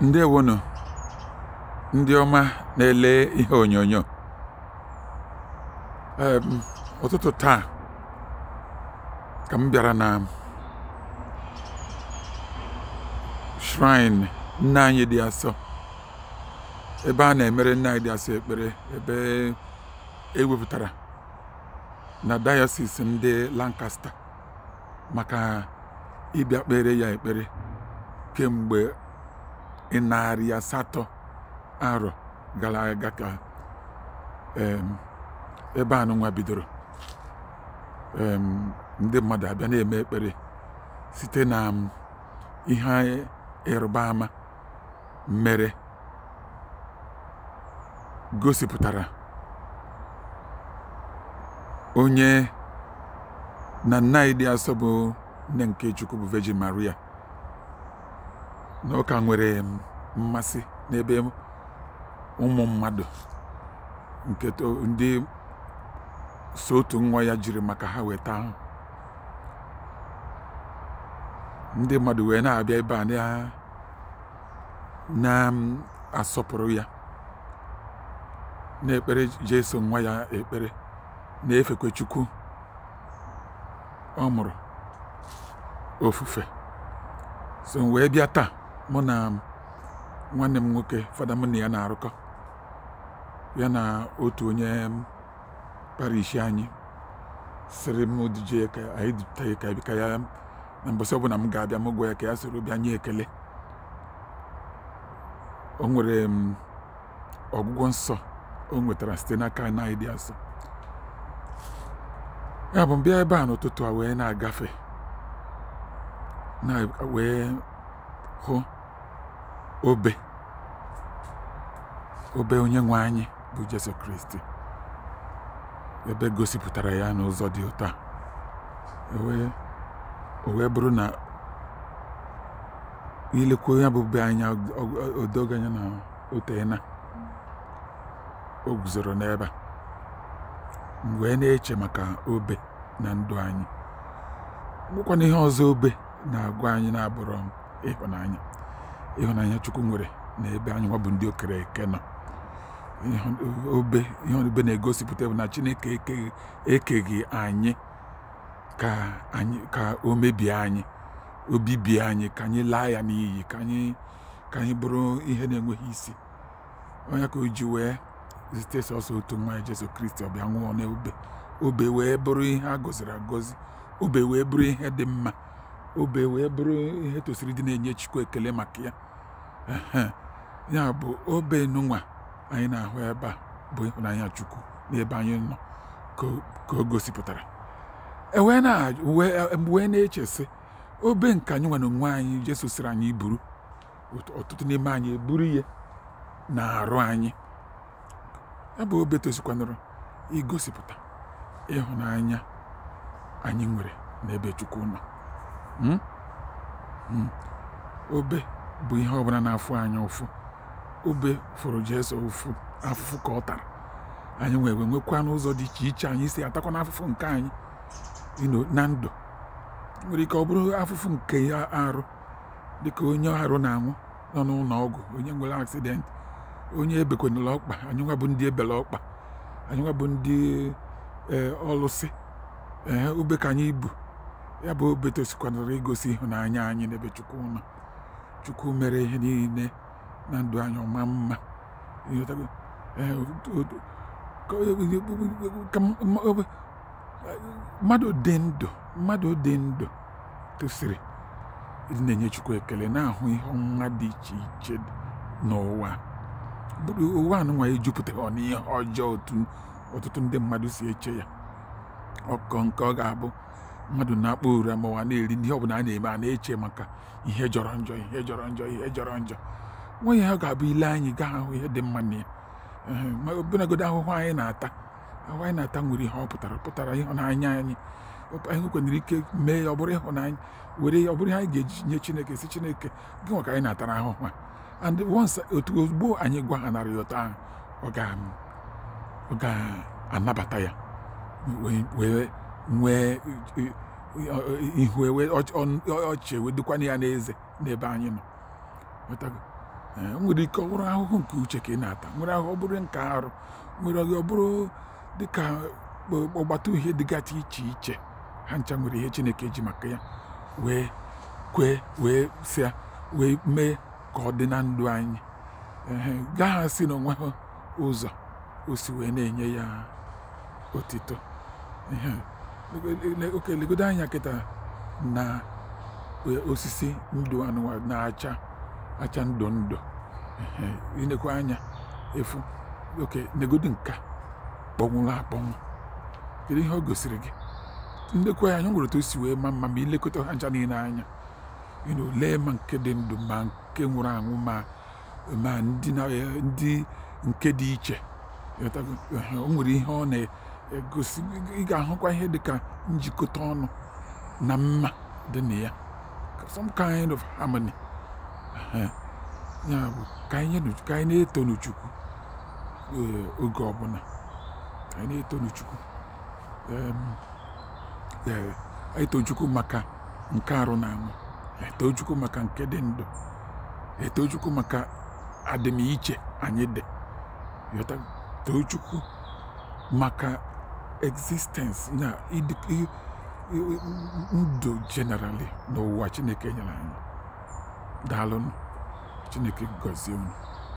Ndị ndewonu ndị ọma na-ele ihe onyonyo ụtụtụ taa ka m bịara na shrine nna anyị dị asọ ebe a na-emere nna anyị dị asọ ekpere ebe ewepụtara na Diocese ndị Lancaster maka ịbịa kpere ya ekpere kemgbe narị asatọ arọ gara aga ka ebe anụnwa bidoro ndị mmadụ abịa na-eme ekpere site na ihe ịrụba ama mere gosipụtara onye na nnaịdị asọ bụ nne nke Chukwu bụ Virgin Maria na ụka nwere mmasị n'ebe ụmụ mmadụ nke ndị so nwa ya jiri maka ha weta ahụ ndị mmadụ wee na-abịa ebe a na-asọpụrụ ya na-ekpere Jesu nwa ya ekpere na-efekwe Chukwu ọ mụrụ ofufe so wee bịa taa mụ na nwanne m nwoke fada mụ na ya na-arụkọ ya na otu onye parish anyị sịrị m duje ka anyị dupụta ya ka ebika ya na mbọsị ọbụla m ga-abịa m gwa ya ka ya soro bịa nye ekele o nwere ọgwụgwọ nsọ o nwetara site n'aka anyị dị asọ ya bụ mbịa ebe a n'ụtụtụ a wee na-agafe na wee hụ obe obe onye nwe anyị bụ Jesu Kristi ebe gosipụtara ya n'ụzọ dị ụtọ o wee bụrụ na ilekwa ya bụ be anya odoganya na otena o guzoro n'ebe mgbe wee na-eche maka obe na ndụ anyị gwụkwana ihe ọzọ obe na-agwa anyị na-abụrụ m ịhụnanya ịhụnanya chukwu nwere na ebe anyị nwa bụ ndị okere eke nọ obe ihe obe na-egosipụta bụ na chineke ekeghị anyị ka anyị o mebie anyị obibie anyị ka anyị laa ya n'iyi ka anyị bụrụ ihe na-enweghị isi onye ka o ji wee zite sọsọ otu nwa Jesu Kristi ọbịa nwụọ n'obe obe wee bụrụ ihe a gọziri agọzi obe wee bụrụ ihe dị mma obe wee bụrụ ihe tosiri dị na-enye Chukwu ekele maka ya ya bụ obe nụnwa anyị na-ahụ ebe a bụ ịhụnanya Chukwu n'ebe anyị nọ ka o gosipụtara e wee e na-echesị obe nke anyị nwa na onwe anyị Jesu sịrị anyị buru ọtụtụ n'ime anyị eburu ihe na-arụ anyị ya bụ obe tosikwanụrụ igosipụta ịhụnanya anyị nwere n'ebe Chukwu nọ Hmm? Hmm. obe bụ ihe ọbụla na-afụ anyị ụfụ obe fụrụ Jesu ụfụ afụfụ ka ọ tara anyị nwere nwekwa n'ụzọ dị iche iche anyị si atakwa n'afụfụ nke anyị na ndụ nwere ike ọ bụrụ afụfụ nke ya arụ dịka onye arụ na-anwụ nọ n'ụlọ ọgwụ onye nwere aksidenti onye ebekwanala ọkpa anyị nwa bụ ndị ebele ọkpa anyị nwa bụ ndị eh, ọlụsị ee eh, ube ka anyị bu. ya bụ Beto sikwanara igosi ịhụnanya anyị n'ebe Chukwu nọ Chukwu mere ihe niile na ndụ anyị ọma mma mmadụ dị ndụ mmadụ dị ndụ tosiri na-enye Chukwu ekele na-ahụ ihe ọma dị iche iche n'ụwa bụrụ ụwa anụnwa ejupụtara n'ihe ọjọọ otu ọtụtụ ndị mmadụ si eche ya ọkọ nke ọ ga-abụ mmadụ na-akpọ uri ma na-eri n'ihe ọbụla a na-eme a na-eche maka ihe jọrọ njọ ihe jọrọ njọ ihe jọrọ njọ nwa ya ga-abụ ile anyị gaa ahụ ihe dị mma na ya ọbụnagodo ahụhụ anyị na-ata ahụhụ anyị na-ata nwere ihe ọ pụtara pụtara ịhụnanya anyị anyị kwenyere ike mee ya ọ bụrụ ịhụnanya were ya ọ bụrụ ihe anyị ga-eji nye chineke si chineke gị nwaka anyị na-atara ahụhụ a and once otu ozugbo anyị gwa ha narị ụtọ ahụ ọ ga-anabata ya wee nwee ihu ọchị wedokwana ya n'eze n'ebe anyị nọ e, nwere ike ọ bụrụ ahụhụ nke uche ka ị na-ata nwere ahụ ọ nke arụ nwere ọghị ọ bụrụ dịka ọgbata uhie dịgasị iche iche ha ncha nwere ihe chineke ji maka ya wee kwee wee sịa wee mee ka ọ dị na ndụ anyị gaa asị na onwe ụzọ o si wee na-enye ya otito oke legodo anya kịta na e, osisi ndụ anụwa na-acha acha ndụ ndụ inekwa anya efu oke legodo nka kpọnwụrụ akpọnwụ kedu ihe ọ gosiri gị ndekwa anya nwere otu osi wee ma mma ma ilekọta ha ncha niile anya lee ma nke dị ndụ ma nke nwụrụ anwụ ma ma ndị e, nke dị iche o nwere ihe ọ na egosi ị ga-ahụkwa ihe dịka njikọta ọnụ na mma dị na ya some kind of harmony ya bụ ka anyị na-etonu Chukwu eh, oge ọbụla ka anyị na-etonu Chukwu eto eh, Chukwu maka nke arụ na anwụ eto maka nke dị ndụ eto Chukwu maka adịmiche anyị dị yọta Chukwu maka existence na ndụ generally n'ụwa chineke nyere anyị daalụ chineke gọzie unu